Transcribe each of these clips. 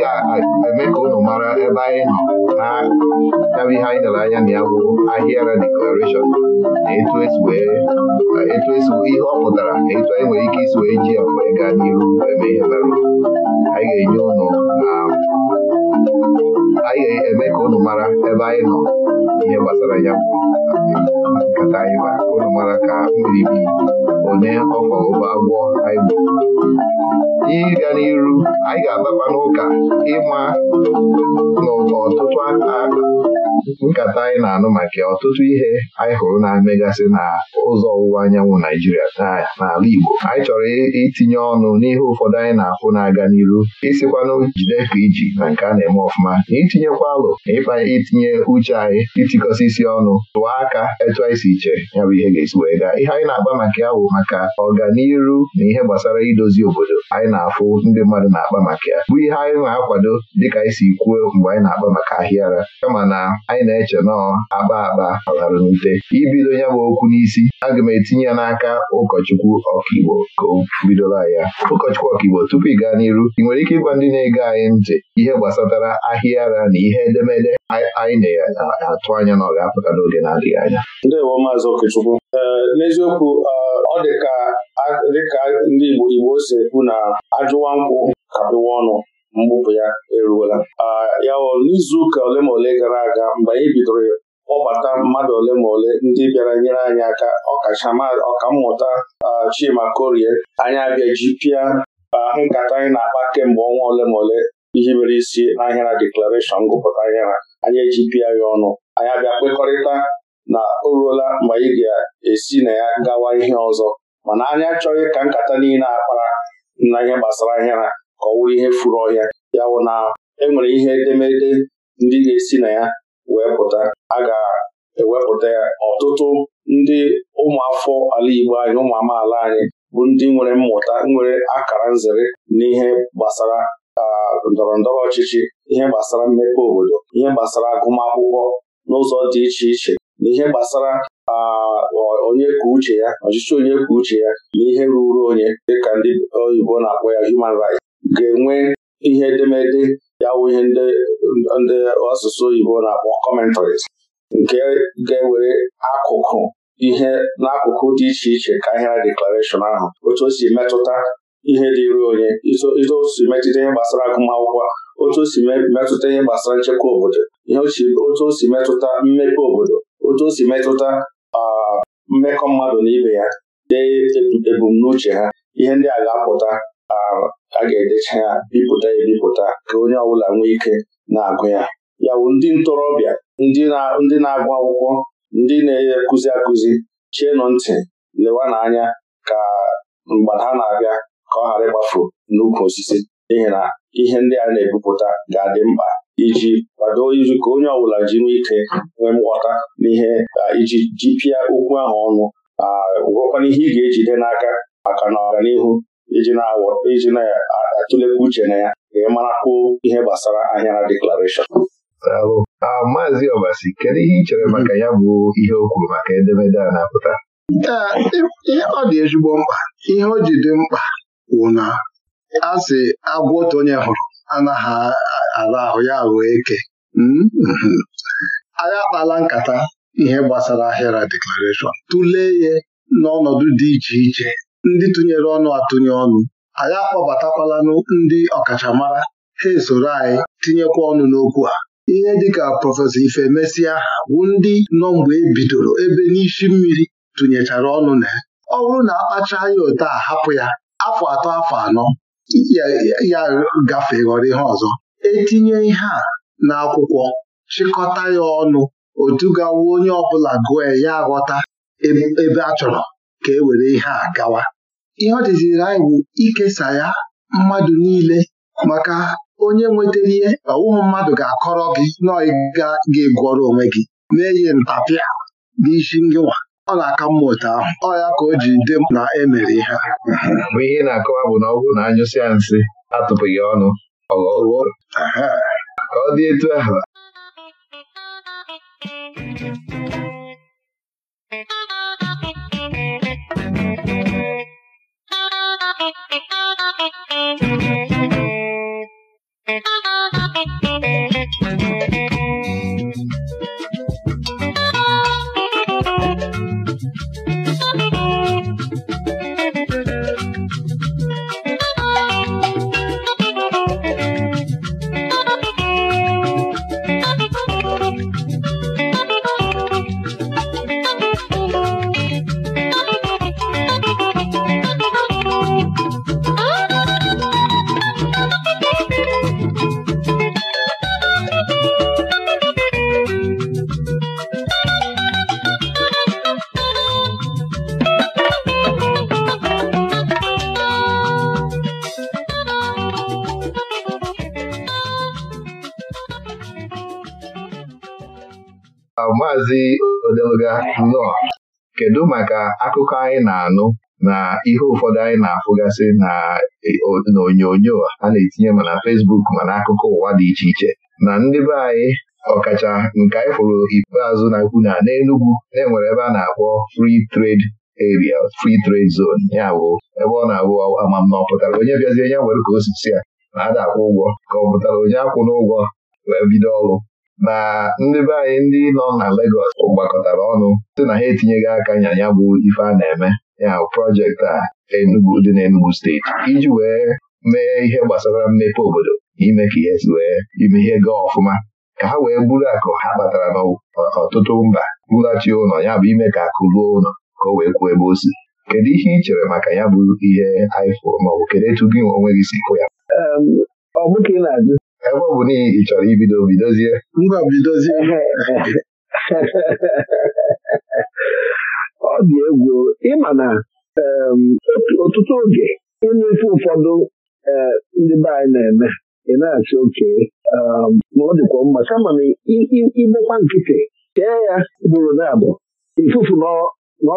anyị ga-eme ka unu mara ebe anyị nọ na yabụ ihe anyị lere anya na ya bụ ahịara deklarashọn na etu esi ihe ọ pụtara na etu anyị nwere ike isi wee ji ya wee gaa n'ihu eme ihe mere anyị ga-enye na um, anyị ga-eme ka unu mara ebe anyị nọ ihe gbasara ya nkata anyị ụlọ mara ka mbibi onye ọfọ ụba gbọ anyị ịga n'iru anyị ga-abakwa n'ụka ịma n'ụtọ ọtụtụ nkata anyị na-anụ maka ọtụtụ ihe anyị hụrụ na-emegasị na ụzọ ọwụwa anyanwụ Naijiria n'ala Igbo anyị chọrọ itinye ọnụ n'ihe ụfọdụ anyị na-afụ na-aga n'iru isikwanụ jide ka iji na nke a na-eme ọfụma na itinyekwa alụ na ịkpa itinye uche anyị itikọsị isi ọnụ tụọ aka etu anyị si iche ya bụ ihe ga-esi wee gaa ihe anyị na-agba maka ya bụ maka ọganiru na ihe gbasara idozi obodo anyị na-afụ ndị mmadụ na-akpa maka ya bụ ihe anyị na-akwado dịka anyị si kwuo mgbe anyị na-akpa maka ahịara kama na anyị na-eche nọọ akpa akpa alara n'ute ibido ya bụ okwu n'isi aga m etinye ya n'aka ụkọchukwu ọkaigbo ka o bidola ya ụkọchukwu ọkaigbo tupu ị gaa n'iru ị nwere ike ịgwa ndị na-ege anyị ntị ihe gbasatara ahịara na ihe edemede anyị na-atụ anya na ọ ga-apụta n'oge na-adịghị anya ndewo maazị Okechukwu e, n'eziokwu e, ọ dị ka ndị Igbo Igbo si ekwu na ajụwa nkwụ kapịwa ọnụ mgbupụ ya eruola ya o n'izu ụka ole ma ole gara aga mgbe anyị bidoro kpọbata mmadụ ole ma ole ndị bịara nyere anyị aka ọkammụta Chima Korie anyị abịa pịa nkata anyị na-akpa kemgbe ọnwa ole ma ole ihe mere isi n'ahịa na deklarashọn ngụpụta ahịa ha anyị ejipịa ya ọnụ anyị abịa kpekọrịta na o ruola mgbe anyị ga-esi na ya gawa ihe ọzọ mana anyị achọghị ka nkata niile akpara na ihe gbasara ahịa ha ka ọ wụrụ ihe furu ọhịa ya wụ na enwere ihe edemede ndị ga-esi na ya wee pụta a ga-ewepụta ya ọtụtụ ndị ụmụafọ ala Igbo anyị ụmụ amaala anyị bụ ndị nwere mmụta nwere akara nzere n'ihe gbasara ndọrọ ndọrọ ọchịchị ihe gbasara mmepe obodo ihe gbasara agụmakwụkwọ n'ụzọ dị iche iche na ihe gbasara onye kwuo uche ya ọchịchị onye kwuo uche ya na ihe ruru onye ka ndị oyibo na-akpọ ya human rights ga-enwe ihe edemede ya wụ ihe ndị asụsụ oyibo na-akpọ commentaries nke ga-ewere akụkụ ihe n'akụkụ dị iche iche ka ahịa deklarashọn ahụ otu o si metụta ihe dịịrị onye izo o si metụta ihe gbasara agụmakwụkwọ otu o si metụta ihe gbasara nchekwa obodo ihe otu o si metụta mmepe obodo otu o si metụta mmekọ mmadụ na ibe ya dee ebumnuche ha ihe ndị a ga-apụta a ga-edecha ya bipụta ebipụta ka onye ọbụla nwee ike na-agụ ya ya bụ ndị ntorobịa ndị na-agụ akwụkwọ ndị na-akụzi akụzi chienụ ntị lewa n'anya ka mgbe ha na-abịa ka ọ ghara ịgbafu n'ukwu osisi n'ihi na ihe ndị a na-ebupụta ga-adị mkpa iji kwado iji ka onye ọbụla ji nwee ike nwee nghọta n'ihe iji jipịa okwu ahụ ọnụ gwụrụkwana ihe ị ga-ejide n'aka maka na ọganihu iji na-atụlekwa uche na ya ka ị ihe gbasara ahịa na deklarashọn Maazị Obasi kedu ihe ị chere maka ya bụ ihe o kwuru maka edemede a na-apụta ọ dị ezigbo mkpa ihe o ji dị mkpa wụ na a agwọ otu onye hụrụ anaghị ara ahụ ya wee eke hmm? Hmm. anyị akpala nkata ihe gbasara ahịara deklarashọn tụlee ya n'ọnọdụ dị iche iche ndị tụnyere ọnụ atụnye ọnụ anyị akpọbatakwala ndị ọkachamara ha esoro anyị tinyekwa ọnụ n'okwu a ihe dịka prọfesọ Ifemesia bụ ndị nọ mgbe ebidoro ebe n'isi mmiri tụnyechara ọnụ na ya ọ bụrụ na akpacha ya ote a hapụ ya afọ atọ afọ anọ ya gafee ghọrọ ihe ọzọ etinye ihe a n'akwụkwọ chịkọta ya ọnụ otu gawa onye ọbụla gụọ ya aghọta ebe a chọrọ ka e were ihe a gawa ihe ọdịziri anyị bụ ikesa ya mmadụ niile maka onye nwetara ihe ọwụhụ mmadụ ga-akọrọ gị na ga-egwọrọ onwe gị mee ihe ntapịa n'isi ngịwa ọ na-aka mma otu ahụ ọ ya ka o ji dị na emere ihe a bụ ihe na-akọwa bụ na ọgwụ na anyụsịa nsị atụpụghị ọnụ ọghọwo ka ọ dị etu ahụ nnọọ kedu maka akụkọ anyị na-anụ na ihe ụfọdụ anyị na-afụgasị na e, onyonyo a na-etinye ma na Fesbuk ma na akụkọ ụwa dị iche iche na ndị be anyị ọkacha nke anyị fụrụ ikpeazụ na-ekwu na n'Enugwu na-enwere ebe a na-akpọ Free Trade eria Free Trade Zone ya bụ ebe ọ na-abụ amamna ọ pụtara onye bịazi onye nwere ka osisi a na-ada akwụ ụgwọ ka ọ pụtara onye akwụ n'ụgwọ wee bido ọrụ na ndị be anyị ndị nọ na Legọs gbakọtara ọnụ sị na ha etinyeghị aka nya ya bụ ife a na-eme ya projekti a Enugu dị n'Enugu steeti iji wee mee ihe gbasara mmepe obodo ime ka ihe si wee ime ihe gaa ọfụma ka ha wee buru akụ ha kpatara n'ọtụtụ mba bulachi ụlọ ya bụ ime ka akụ ruo ụlọ ka o wee kwuo ebe o si kedu ihe ị chere maka ya bụ ihe anyị maọbụ kedu etu gị onwe gị si fụ ya ọ bụghị ka ị na-ajụ ebe ọ bụ n'ihi ị chọrọ ibido bidozie mba bidozie ọ dị egwu ịma na ọtụtụ oge ịnụ ife ụfọdụ eh, ndị be anyị na-eme ị na-achị oke ma ọ dịkwa mma kama na igbekwa nkịtị chee ya bụrụ na abụ ifufu na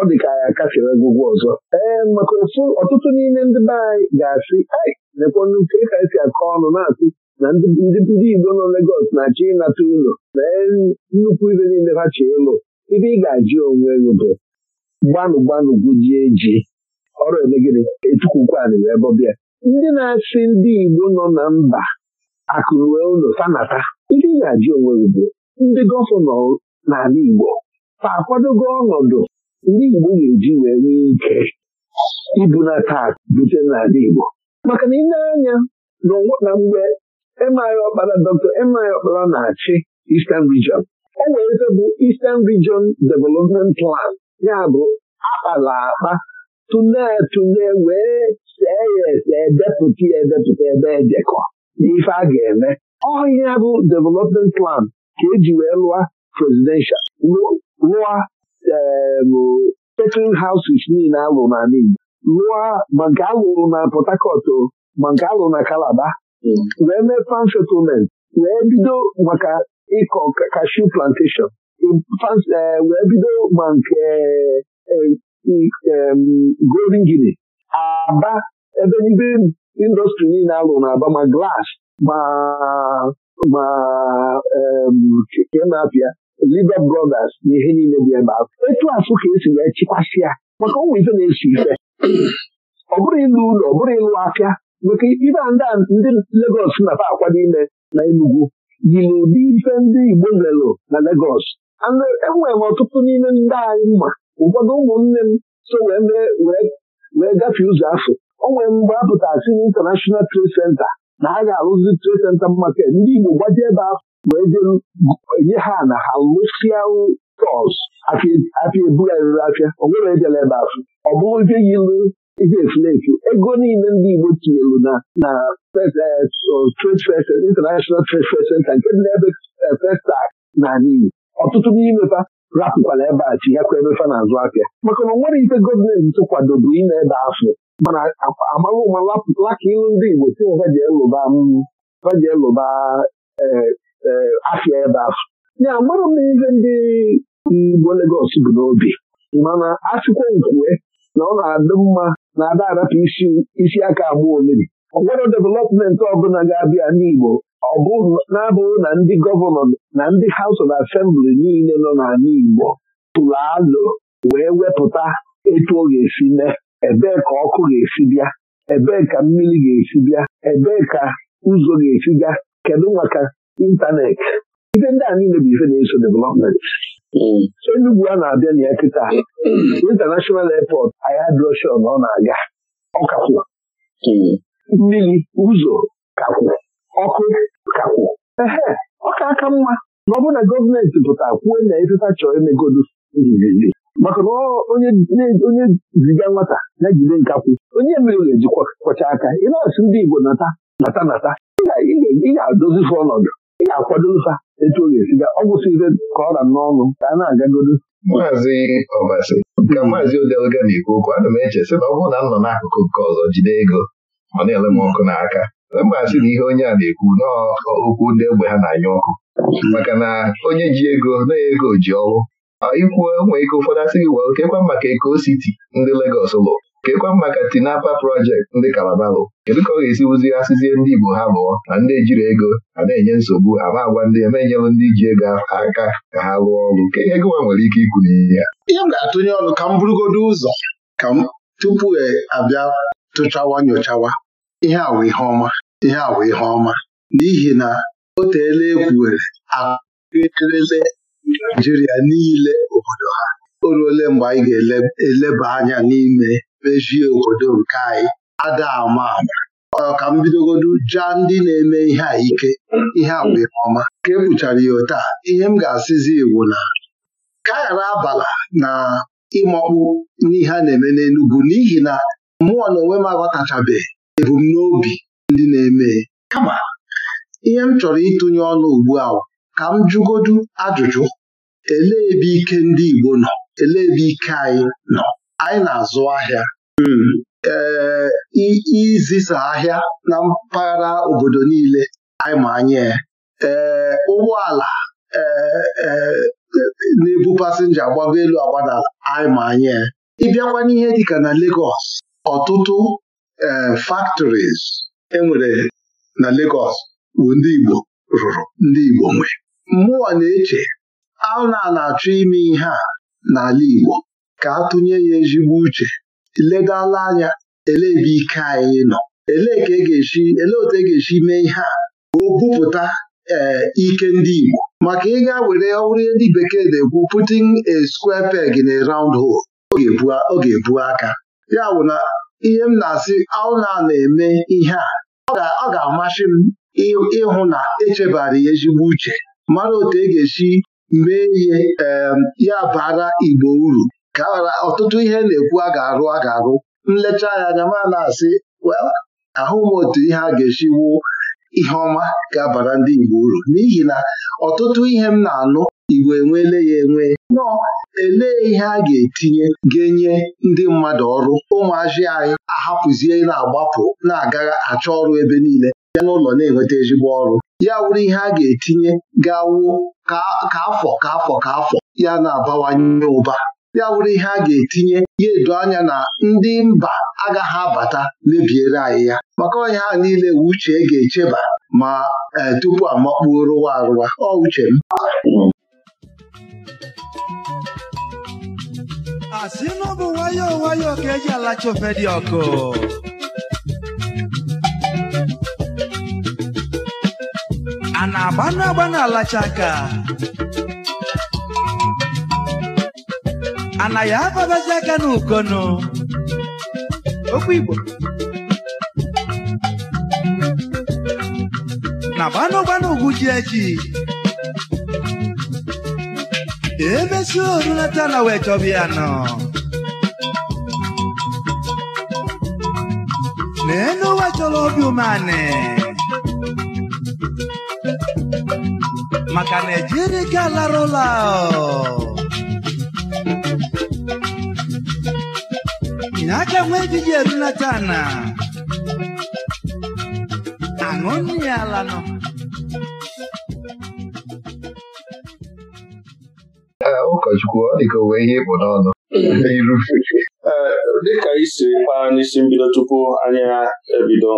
ọ dị ka ya kafere egwugwu ọzọ ee maka ọtụtụ n'ime ndị be anyị ga-asị lekwa nnukwu ka esi akọ ọnụ na-asị na ndị ndị Igbo nọ Legọs na-achọ ịnata ụlọ mee nnukwu ibe niile ha chọọ ịlụ ibe ị ga-ajụ onwe gị bụ gbanụ gbanụ gụjie ji ọrụ emegide etukwukwanị wee bọbịa ndị na-asị ndị Igbo nọ na mba akụnwe ụlọ sanata ibe ị ga-ajụ onwe gị bụ ndị gọvanọ n'ala Igbo fa akwadogo ọnọdụ ndị Igbo ga-eji wee nwee ike taa bute n'ala Igbo maka na ị na-anya na mgbe Emeagha Ọkpara Dr. Emeagha Ọkpara na-achị Eastern Region o e were bụ Eastern Region Development Plan ya bụ akpala akpa tụne wee see ya ese edepụta ya edepụta ebe ejekọ n'ife a ga-eme ọhịa bụ Development Plan ka eji wee lụọ presidential lụọ second houses niile alụ na Igbo lụọ ma nke alụrụ na Port Harcourt ma nke alụrụ na Calabar wee mee fan settlement wee bido maka ịkọ kashu plantation wee bido ma nke e, e, golden guinea aba ebe nibe indọstrị niile alụ na-aba ma glas, ma ma e, kemapịa Liber Brothers na ihe niile bụ ebe ahụ etu asụ ka esi wee ya maka ụmụ ife na-esi ife ọ bụrụ ịlụ ụlọ ọ bụrụ ịlụ afịa maka ibe ndị ndị Legos na-afa akwado ime na Enugu yiri ụdị ife ndị Igbo lelụ na Legos enwere m ọtụtụ n'ime ndị anyị mma ụfọdụ ụmụnne m so wee wee gafee ụzọ afọ o nwere mgbe a pụtasị na International Trade na a ga-arụzi Trade senta maket ndị Igbo gbaji ebe ahụ wee jee ha na ha lụsịa tọs afịa ebugharịrị afịa o ejela ebe afọ ọ bụrụ ife yilu iji efulefu ego niile ndị Igbo tinyelu na na eh, trade fair international trade fair center nke dị n'ebe eh, festak na Igbo ọtụtụ n'imepa rapụkwala ebe a chi ya kwa emefa n'azụ aka maka na nwere ife gọọmenti tụkwadobu ime ebe afọ mana amaghị ụma laka ịlụ ndị Igbo tinye vaji elụba mm, eh, afịa ebe afọ ya amara m ihe ndị Igbo Legọs bụ n'obi mana achịkwa nkwue na ọ na-adị mma na-ada arapụ isi aka agba omeri ọ developmenti ọbụla ga-abịa n'Igbo ọ bụ na-abụghị na ndị gọvanọ na ndị haus of Assembly niile nọ n'ala Igbo tụrụ alụ wee wepụta etu ọ ga-esi mee ebee ka ọkụ ga-esi bịa ebee ka mmiri ga-esi bịa ebee ka ụzọ ga-esi gaa kedu maka ịntanetị ife ndị a niile bụ ife na-eso development Mm. Enugwu a na-abịa mm. na ya kịta ahịa Airport ayadroshon ọ na-aga ọkakwụ mm. mmiri ụzọ kakwụ ọkụ kakwụ ehe ọ ka aka mma na ọ na gọọmenti pụta kwuo na efefa chọrọ imegodu nzizi maka na onye ziga nwata na jide nkakwụ onye mere ga-eji kwọcha aka ịna-asụ ndị Igbo nata nata nata ị ga-adozi ọnọdụ akwado nfa etu ọ ga-esiga ọ gwụsị ka ọ ra n'ọnụ ka a na-agagodo maazị ọbasi ka maazị odelga na-ekwu okwu ana m eche sị na ọ bụrụ na m nọ n'akụkụ nke ọzọ jide ego ọ na-ele m ọkụ n'aka mgbe na ihe onye a na-ekwu n'okwu ndị egbe ha na-anya ọkụ maka na onye ji ego na ego ji ọrụ ikwuo nwee ike ụfọdụ asị gị wel kekwa maka eko siti ndị Legọs lụrụ kekwa maka Tinapa projekti ndị Kalabalụ kedu ka ọ ga-esi wuzie asịzie ndị Igbo ha lụọ na ndị ejiri ego a na-enye nsogbu ama agwa ndị eme ndị ji ego aka ka ha lụọ ọrụ ka ego nwa nwere ike ikwu n'ihe ya ihe m ga-atụnye ọnụ ka m burugodo ụzọ ka m tupu e abịa tụchawa nyochawa ihe awa ihe ọma ihe awa ihe ọma n'ihi na o teela ekwuwere akụrịrịle Naijiria niile obodo ha o ruole mgbe anyị ga-eleba anya n'ime bejie obodo nke anyị ada ama ama ka m bidogodu jaa ndị na-eme ihe a ike ihe abụ ọma ka ebuchara ya taa ihe m ga-asịzi iwu na ka ghara abala na ịmakpu n'ihe a na-eme n'Enugwu n'ihi na mmụọ na onwe m aghọtachabeghị ebumnobi ndị na-eme kama ihe m chọrọ ịtụnye ọnụ ugbu a ka m jụgodu ajụjụ elee ebe ike ndị Igbo nọ elee ebe ike anyị nọ anyị na-azụ ahịa ee um, izisa ahịa na mpaghara obodo niile anyị ma anya ee um, ụgbọala ee um, na-ebu pasinja agbago elu agbadala anyị ma anya e. ịbịakwa n'ihe dịka na Lagos ọtụtụ ee factories enwere na Lagos bụ ndị Igbo rụrụ ndị Igbo nwe mmụọ na-eche a na-achọ ime ihe a n'ala Igbo ka tụnye ya ezigbo uche ledala anya elee ebe ike anyị nọ elee ka e ga-esi elee otu e ga-esi mee ihe a o bupụta ee eh, ike ndị Igbo maka ịga were ọrụ ndị bekee na-ekwu putting a square peg in a round hole ọ ga-ebu aka ya bụ na ihe m na-asị aụna na-eme ihe a ọ ga-amasị m ịhụ na echebara ya ezigbo uche mara otu e ga-esi mee ihe eh, ya bara Igbo uru ka ọtụtụ ihe na-ekwu a ga-arụ a ga-arụ nlecha ya anya ma na-asị ahụ m otu ihe a ga-esi wuo ihe ọma ga-abara ndị Igbo uru n'ihi na ọtụtụ ihe m na-anụ Igbo enweele ya enwe nọọ elee ihe a ga-etinye ga-enye ndị mmadụ ọrụ ụmụazị anyị ahapụzie na-agbapụ na-aga achọ ọrụ ebe niile ya n'ụlọ na-enweta ezigbo ọrụ ya wụrụ ihe a ga-etinye ga ka afọ ka afọ ka afọ ya na-abawanye ụba ya wụrụ ihe a ga-etinye ya edo anya na ndị mba agaghị abata mebiere anyị ya maka onye ha niile uche ga-echeba ma e, tupu amakpuo rụwa arụwa ọ uche m Asịnụ bụ nwayọọ nwayọọ ka eji alacha dị ọkụ a na-agbanụ alacha aka anaghị ababazi aka n'ukono okwu Igbo na gbanụgbanụ ugwu ji echi emesi orulata na wee chọba ya nọ na chọrọ obi umeanị maka na ejirika larụla na aka nwa ejiji erulata na aṅụ ya ala nọ ụkọchukwu ah, ọ dịka owee ihe ịbụ n'ọnụ mm. eh, dịka isi kpaa n'isi mbido tupu anyị ebido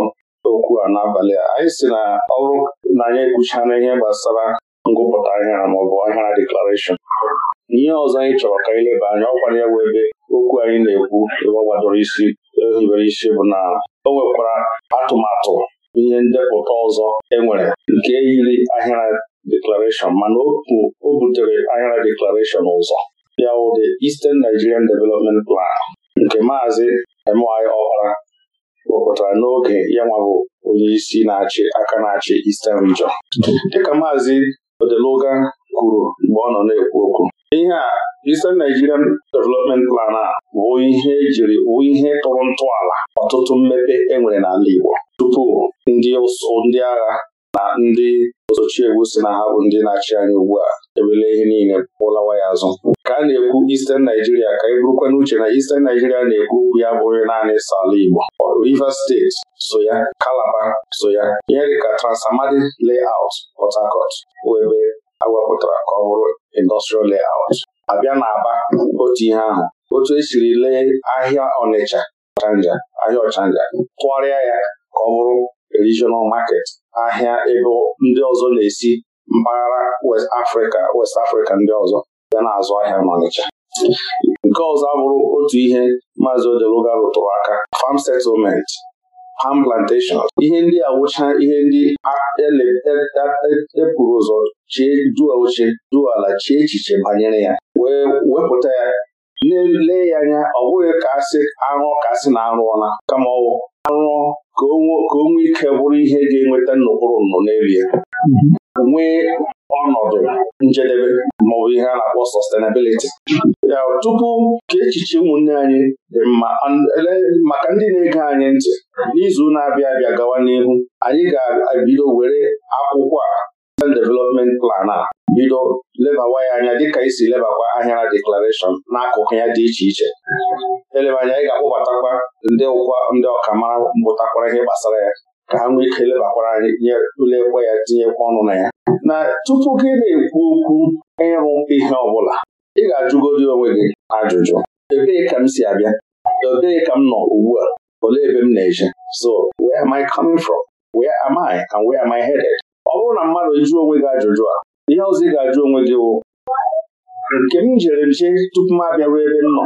okwu a n'abalị a anyị si na ọrụ na anyị ekwuchana ihe gbasara ngụpụta ahịa maọbụ ahịa deklarashọn ihe ọzọ anyị chọrọ ka anyị leba anya ọkwa ya bụ ebe okwu anyị na-ekwu ebe isi ehibere isi bụ na o nwekwara atụmatụ ihe ndepụta ọzọ enwere nke yiri ahịra deklarashọn mana o butere ahịra deklarashọn ụzọ ya wụdị Eastern Nigerian Development Plan nke maazị emi Ọkpara wepụtara n'oge ya nwabụ onye isi na-achị aka na-achị Eastern Region dịka maazị Odeluga kwuru mgbe ọ nọ na-ekwu okwu ihe a Eastern Nigerian Development Plan a bụ ihe jiri wụ ihe tụrụ ntọala ọtụtụ mmepe enwere n'ala Igbo tupu ndị ụsụ ndị agha na ndị osochiegwu si na ha bụ ndị na-achị anya ugbu a ebele ihe niile pụlawa ya azụ ka a na-ekwu Eastern Naijiria, ka eburukwa n'uche na Eastern Naijiria na-ekwu okwu ya bụghị naanị sọ ala Igbo Rivers State so ya Calabar so ya ihe Transamadi Layout Port Harcourt bụ ebe awepụtara ka ọ bụrụ industrial layout abịa aba otu ihe ahụ otu esiri lee ahịa Ọnịcha Ọchanja ahịa Ọchanja tụgharịa ya ka ọ bụrụ regional market ahịa ebe ndị ọzọ na-esi mpaghara West Africa West Africa ndị ọzọ bịa na-azụ ahịa n'Ọnịcha nke ọzọ abụrụ otu ihe Maazị Odeluga rụtụrụ aka farm settlement palm plantation ihe ndị awụcha ihe ndị epụrụ e, e, e, ụzọ chie duo oche duo ala chie echiche banyere ya wee wepụta ya lelee ya anya ọ bụghị ka asị arụ ka asị na arụọla kama ọwụ arụọ ka o ike bụrụ ihe ga-enweta nnukwu nụ n'elu ya nwee ọnọdụ njedebe maọbụ ihe a na-akpọ sọstenabiliti tupu ka echiche ụmụnne anyị dị mma maka ndị na-ege anyị ntị n'izu na-abịa abịa gawa n'ihu anyị ga-ebido were akwụkwọ a development plan a bido lebawa ya anya dịka isi lebakwa ahịara deklarashọn n'akụkụ ya dị iche iche eleba anya anyị ga-akpọbatakwa ndị ọkamara mbụtakwara ihe gbasara ya ka ha nwee ike lebakwara anyị ya tinyekwa ọnụ na ya na tupu gị na-ekwu okwu ịrụ ihe ọ bụla ị ga-ajụgodi onwe gị ajụjụ ebee ka m si abịa ebee ka m nọ ugbu a olee ebe m na-eje so where am I coming from where am I and where am I headed ọ bụrụ na mmadụ jụ onwe gị ajụjụ a ihe ọzọ ị ga-ajụ onwe gị wụ nke m jere nje tupu m abịaruo ebe m nọ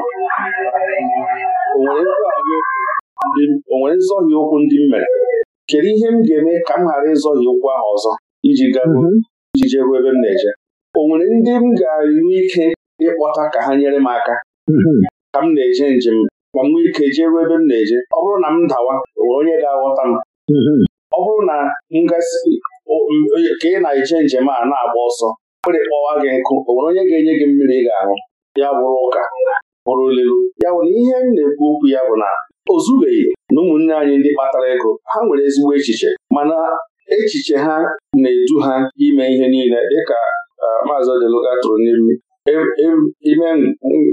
o nwere nzọghị okwu ndị m mere kedu ihe m ga-eme ka m ghara ịzọghị ụkwụ ahụ ọzọ iji garuo mhm. iji jeruo ebe m na-eje o nwere ndị m ga-enwe ike ịkpọta ka ha nyere m aka mhm. ka m na-eje njem ma m nwee ike jeruo ebe m na-eje ọ bụrụ na m dawa nwere onye ga-aghọta m mhm. ọ bụrụ na ngasị ka ị na-eje njem a na-agba ọsọ kpere kpọwa gị nkụ o nwere onye ga-enye gị mmiri ị ga-aṅụ ya bụrụ ụka bụrụ olelu ya bụ na ihe m na-ekwu okwu ya bụ na o na ụmụnne anyị ndị kpatara ego ha nwere ezigbo echiche mana echiche ha na-edu ha ime ihe niile dịka e, maazị Odeluga tụrụ n'iru e, e, ime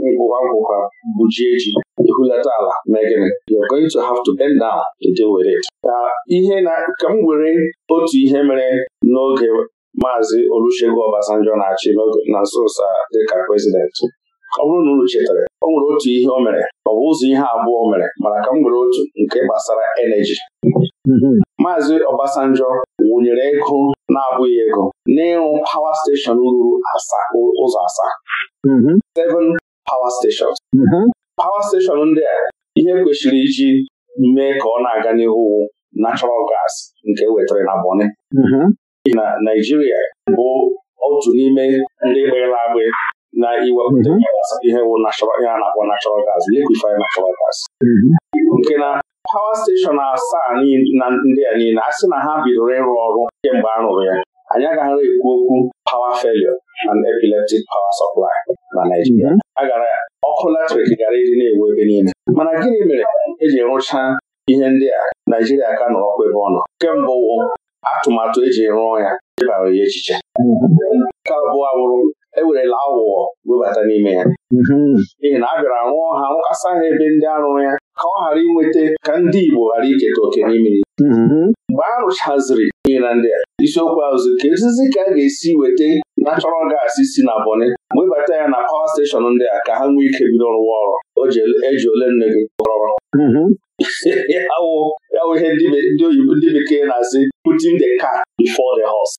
ngwụwa ngwụwa bụji eji ehulata ala you're to have to with it. ihe na ka m were otu ihe mere n'oge maazị Olusegun Obasanjo na-achị na nso dịka prezidenti ọ bụrụ na unu chetara o nwere otu ihe o mere ọ bụ ụzọ ihe abụọ o mere mana ka m nwere otu nke gbasara eneji mm-hmm. Maazị Obasanjo wụnyere ego na-abụghị ego n'ịrụ pawa steshọn ruru ụzọ asaa mm-hmm. seven pawa steshọn pawa steshọn ndị a ihe kwesịrị iji mee ka ọ na-aga n'ihu natural gas nke wetara na Bọni mm-hmm. na Naijiria bụ otu n'ime ndị gbịrịla agbị na iwepụta mhm. ihe wụ ihe a na-akpọ natural gas liquify natural gas mhm. nke na pawa steshọn asaa na ndị a niile a sị na ha bidoro ịrụ ọrụ kemgbe a rụrụ ya anyị agaghị ekwu okwu power failure and epileptic power supply na Naijiria mhm. a gara ọkụ latrik gara ịdị na-ewu ebe niile mana gịnị mere eji rụchaa ihe ndị a Naijiria ka nọrọ ọkụ ebe ọ nọ kemgbe atụmatụ eji rụọ ya debara ya echiche nke abụọ abụrụ ewerela aghụghọ webata n'ime ya mm-hmm. n'ihi na a bịara rụọ ha nwụkasa ha ebe ndị arụrụ ya ka ọ ghara inweta ka ndị Igbo ghara iketa oke n'ime ya mm-hmm. mgbe a rụchaziri ihe na ndị a isiokwu azụ ka ezizi ka a ga-esi weta natural gas si na boni webata ya na pawa steshọn ndị a ka ha nwee ike bido rụwa ọrụ eji e ole nne gị rọrọ mm-hmm. ya wụ ihe ndị bekee na-asị putin the car before the horse.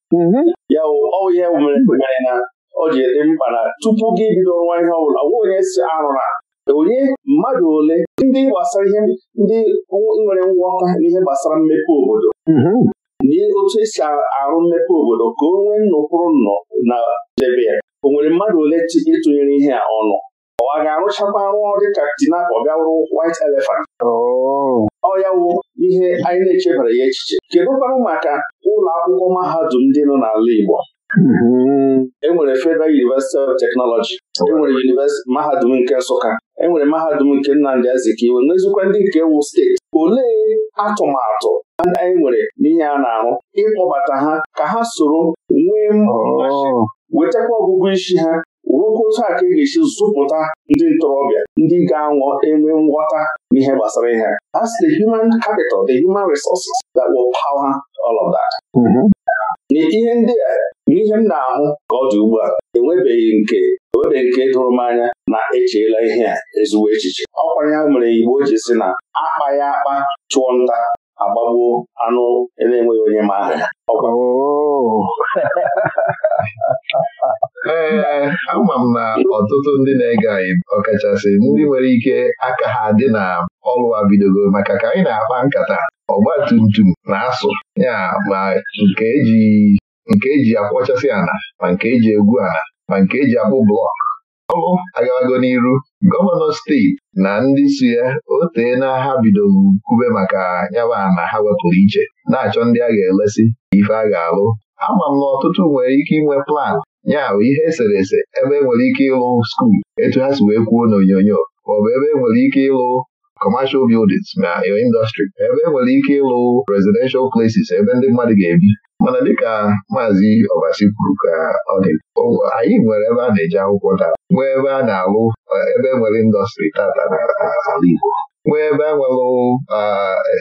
ya wụ ọ ihe mere mere na o ji dị mkpa na tupu gị bido nwa ihe ọbụla onwe onye si arụ na onye mmadụ ole ndị gbasara ihe ndị nwere nghọta n'ihe gbasara mmepe obodo otu esi arụ mmepe obodo ka o nwee nnọkwụrụ nnọ na debe ya o nwere mmadụ ole ịtụnyere ihe a ọnụ ọ ga-arụchakwa arụ dịka tinap ọ bịa wụrụ white elephant oh. ọ wụ ihe anyị na-echebara ya echiche kedụ kwanụ maka ụlọ akwụkwọ mahadum ndị nọ n'ala Igbo Hmm. enwere Federal University of Technology enwere University mahadum nke Nsụka enwere mahadum nke Nnamdị Azikiwe n'ezikwa ndị nke wu steeti olee atụmatụ anyị nwere n'ihe a na-arụ ịkpọbata ha ka ha soro nwee oh. wetakwa ọgụgụ isi ha rụkwa otu a ka e ga-esi zụpụta ndị ntorobịa ndị ga anwụ enwe nghọta n'ihe gbasara ihe As the human capital, the human resources that will power all of that. Mm-hmm. n'ihe ndị a n'ihe m na-ahụ ka ọ dị ugbu a enwebeghị nke enwebeghị nke dụrụ m anya na echeela ihe a ezigbo echiche ọkwa ya mere Igbo ji si na akpa ya akpa chụọ nta agbagbuo anụ na-enweghị onye ma aha ya ee eh, ama m na ọtụtụ ndị na-ege anyị ọkachasị ndị nwere ike aka ha dị na ọrụ bidogo maka ka anyị na-akpa nkata ọgba tum na-asụ ya ma nke eji e akwọchasị ana ma nke eji egwu ana ma nke eji akpụ blọk ọgụ agabago n'iru gọvanọ steeti na ndị suya, ya o na ha bidoro nkube maka nyaba na ha wepụrụ iche na-achọ ndị a ga-elesi ife a ga-alụ ama m na ọtụtụ nwere ike inwe plan ya ihe eserese ebe enwere ike ịlụ skuul etu ha si wee kwuo n'onyonyo maọbụ ebe enwere ike ịlụ commercial buildings na uh, your industry ebe enwere ike ịlụ residential places ebe ndị mmadụ ga-ebi mana dịka maazị Obasi kwuru ka ọ dị oh, anyị nwere ebe a na-eji akwụkwọ taa nwee uh, ebe a na-alụ ebe enwere indọstrị tata n'ala Igbo nwee uh, ebe a nwelụ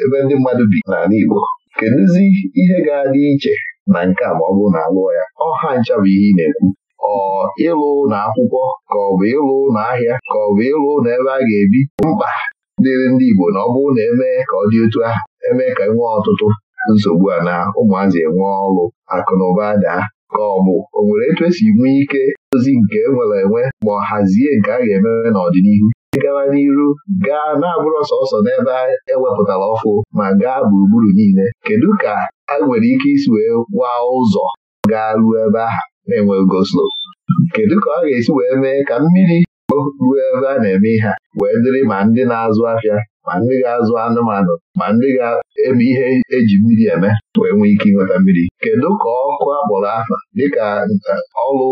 ebe ndị mmadụ bi n'ala Igbo kedụzi ihe ga-adị iche na nke a ma ọ bụrụ na alụọ ya ọha ncha bụ ihe ị na-ekwu ọ ịlụ na akwụkwọ ka ọ bụ ịlụ na ahịa ka ọ bụ ịlụ na ebe a ga-ebi mkpa dịrị ndị Igbo na ọ bụrụ na emee ka ọ dị otu a. emee ka nwee ọtụtụ nsogbu a na ụmụazị enwe ọrụ akụ na ụba daa ka ọ bụ o nwere etu esi nwee ike ozi nke enwere enwe ma ọ hazie nke a ga-emewe n'ọdịnihu ịgawa n'iru gaa na-abụrụ sọsọ n'ebe ewepụtara ọfụ ma gaa gburugburu niile kedu ka a nwere ike isi wee waa ụzọ gaa ruo ebe ahụ na-enweghị goslo kedu ka ọ ga-esi wee mee ka mmiri ruo ebe a na-eme ihe a wee dịrị ma ndị na-azụ afịa ma ndị ga-azụ anụmanụ ma ndị ga-eme ihe eji mmiri eme wee nwee ike ịnweta mmiri kedu ka ọkụ akpọrọ afa dịka eh, ọrụ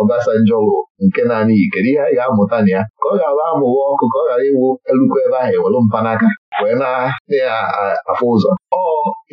Obasanjọlụ nke naanị yi kedu ihe a ga-amụta na ya ka ọ ga-abụ amụwa ọkụ ka ọ ghara iwu elukwu ebe ahụ ewelu mpanaka wee na-afụ ụzọ ọ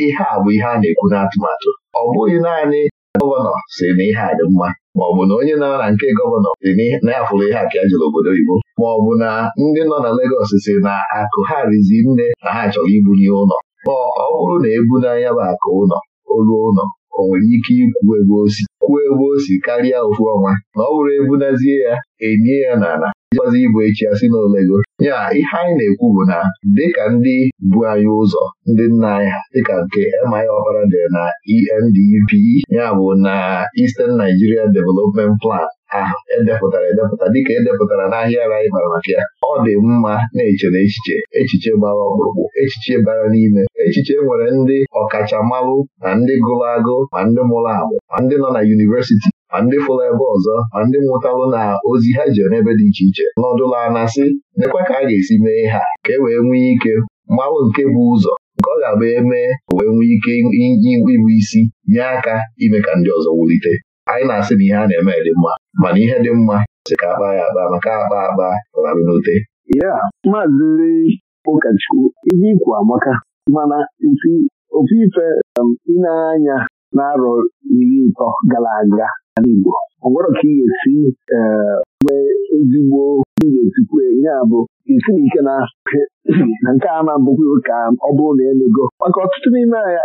ihe a bụ ihe a na-ekwu n'atụmatụ ọ bụghị naanị gọvanọ si na ihe a dị mma maọbụ na onye nọ na nke gọvanọ dị na ya ihe a ka obodo oyibo? obodo oyibo maọbụ na ndị nọ na Legọs si na akụ ha rizi nne na ha chọrọ n'ihe ụlọ ma ọ bụrụ na ebu n'anya bụ akụ ụlọ olu ụlọ o nwere ike ikwu ebe osi kwuo ebe o si karịa ofu ọnwa na ọ bụrụ ebunazie ya enye ya n'ala jikwazi igbo echi asị n'olego ya ihe anyị na-ekwu bụ na dịka ndị bu anyị ụzọ ndị nna anyị ha dịka nke MI Ọkpara dị na ENDP e ya bụ na Eastern Nigeria Development Plan ahụ edepụtara edepụta dịka edepụtara n'ahịa ara anyị mara maka ya ọ dị mma na echere echiche echiche gbara ọkpụrụkpụ echiche bara n'ime echiche nwere ndị ọkachamalụ na ndị gụrụ agụ ma ndị mụrụ agbụ ma ndị nọ na yunivesiti ma ndị fụrụ ebe ọzọ ma ndị nwụtalụ na ozi ha ji n'ebe dị iche iche nọdụla anasị nekwa ka a ga-esi mee ha ka e wee nwee ike mmanwụ nke bụ ụzọ nke ọ ga-abụ eme wee nwee ike ịbụ isi nye aka ime ka ndị ọzọ wulite anyị na-asị na ihe a na-eme dị mma mana ihe dị mma si ka akpa ya akpa maka akpa akpa rarụ n'ute ya maazị ụkọchukwu ihe ikwu amaka mana ofe ife um, ịna-anya na arọ iri ịtọ gara aga ala Igbo ọ gwọrọ ka ị ga-esi eh, nwee ezigbo ị ga-esikwu enye bụ isi ike na nke a na-abụghị ka ọ bụrụ na emego maka ọtụtụ n'ime anya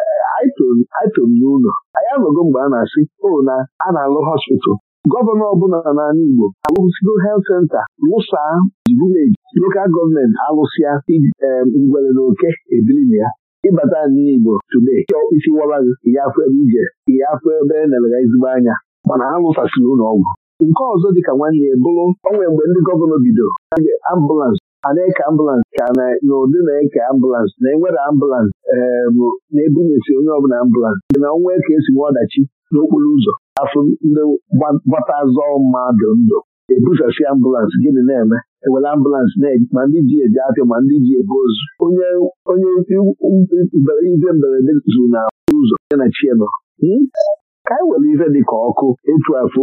n'ụlọ anyị anọgo mgbe a na-asị o na a na-alụ hospital gọvanọ ọbụla n'ala Igbo alụsigo helt senta lụsa vileji lokal gọọmenti alụsịa eh, ngwere na oke na ya ịbata n'Igbo tude chọọ isi wara ya afọ ebe ije ihe afọ ebe e nelega ezigbo anya mana ha lụtasịrị ụlọ ọgwụ nke ọzọ dịka nwanne ya bụrụ onwe mgbe ndị gọvanọ bido ambụlansị a na-eke ambụlansị ka na na-eke ambụlansị na enwere ambụlansị na-ebunyesi onye ọbụla ambụlansị dị na ọnwa ka esi nwe ọdachi n'okporo ụzọ afọ ndị gbata azọ mmadụ ndụ ebusasi ambụlansị gịnị na-eme ewere ambụlansị ma ndị ji eje apịa ma ndị ji ebe ozu onye onye mberede zuru na ụzọ ya na chienọ ka anyị were ife dịka ọkụ etu afọ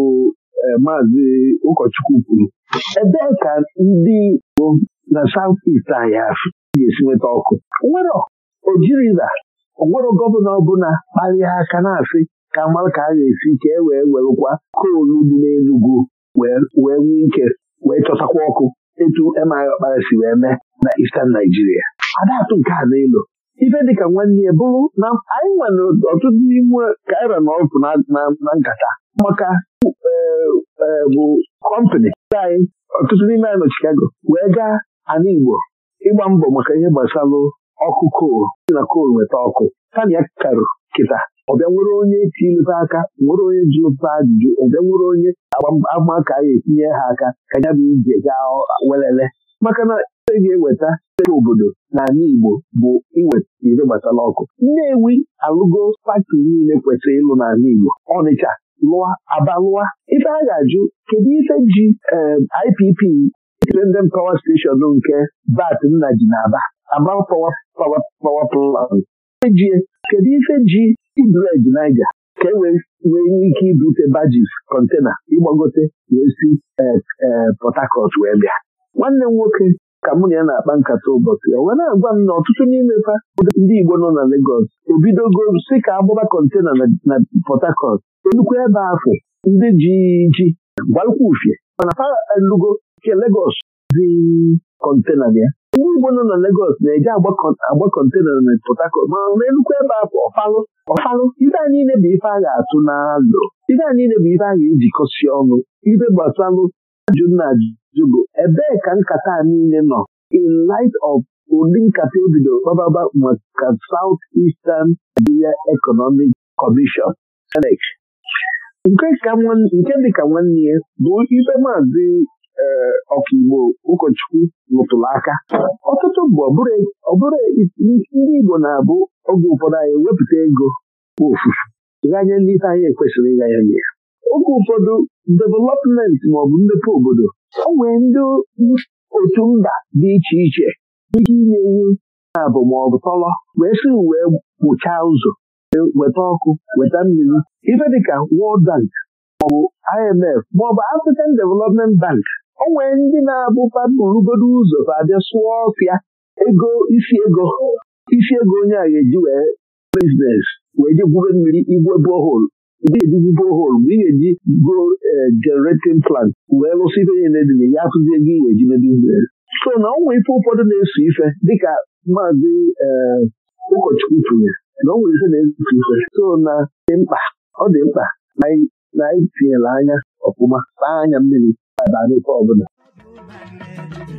e, maazị ụkọchukwu kwuru ebee ka ndị Igbo na saut ist anyị ga-esi nweta ọkụ nwere ojiriza onwero gọvanọ ọbụla kparịa aka na-asị ka mara ka a ga-esi ka e wee werekwa koolu dị n'Enugwu wee nwee ike wee chọtakwa ọkụ etu emaghị ọkpara si wee mee na istan naijiria adatụ nke a n'elu ife dịka nwanne ya bụrụ na anyị nwere ọtụtụ n'ime kaira na ọkụ na nkata maka e, e, bụ kọmpani anyị ọtụtụ n'ime anyị nọ Chicago wee gaa ana Igbo ịgba mbọ maka ihe gbasara ọkụ kol na kol nweta ọkụ tana ya karụ kịta ọbịa nwere onye tilụta aka nwere onye ji ụta ajụjụ ọbịa nwere onye agbamaka ya etinye ha aka ka ya bụ ije gaa welele maka na e ga-eweta obodo na ala Igbo bụ iweta ire gbatala ọkụ Nnewi alụgo faktọri niile kwesịrị ịlụ n'ala Igbo Ọnịcha lụa Aba lụa ife a ga-ajụ kedu ife ji ehm, IPP Independent Power Station nke bat nna ji na-aba Aba Power Power Plant ejie kedu ife ji Ibred Naija ka e wee nwee ike ibute bajis kọntena ịgbagote wee si eh, eh, Port Harcourt wee bịa nwanne m nwoke ka mụ na ya na-akpa nkata ụbọchị ya, wee na-agwa m na ọtụtụ n'ime fa ndị Igbo nọ na Legọs ebidogo si ka agbaba kọntena na Port enukwu ebe afọ ndị ji ji gbalụkwa ufie mana fa elugo nke Legọs dị kọntena ya ndị Igbo nọ na Legọs na-eji agba kọntena na Port Harcourt ma na enukwu ebe afọ ọfalụ ọfalụ ibe a niile bụ ife a ga-atụ n'azụ ibe anyị niile bụ ife a ga-ejikọsi ọnụ ibe gbasalụ ajụ na ajụ jụbụ ebee ka nkata a niile nọ in light of ụdị nkata ebido kpababa maka South Eastern Nigeria Economic Commission SENEC nke ka nwanne ya bụ ibe maazi eh, ọkaigbo ụkọchukwu rụtụrụ aka ọtụtụ bụ ọbụrụ ndị Igbo na-abụ oge ụfọdụ anyị wepụta ego ofufu ganye ndị isi anyị ekwesịrị ịganye ya oge ụfọdụ development maọbụ mmepe obodo o nwere ndị otu mba dị iche iche ike inye iwu abụ maọbụ tọlọ wee si wee kpụchaa ụzọ weta ọkụ weta mmiri ife dịka wọld Bank maọbụ IMF maọbụ African Development Bank o nwere ndị na-abụpa burugodo ụzọ ka abịa sụọ ọfịa ego isi ego isi ego onye a ga-eji wee biznes wee je gwube mmiri igwe boholu ga-eduzi bohol mgbe ị ga-eji go e, generatin plant wee lụsị ihe nye na-edina ya akụzie ego ị ga-eji n'ebe so na ọnwa ife ụfọdụ na-eso ife dịka maazị e, ụkọchukwu tụnyere na ọnwa ife na-eso ife so na dị mkpa ọ dị mkpa na anyị tinyere anya ọfụma taa anya mmiri baa n'ife ọbụla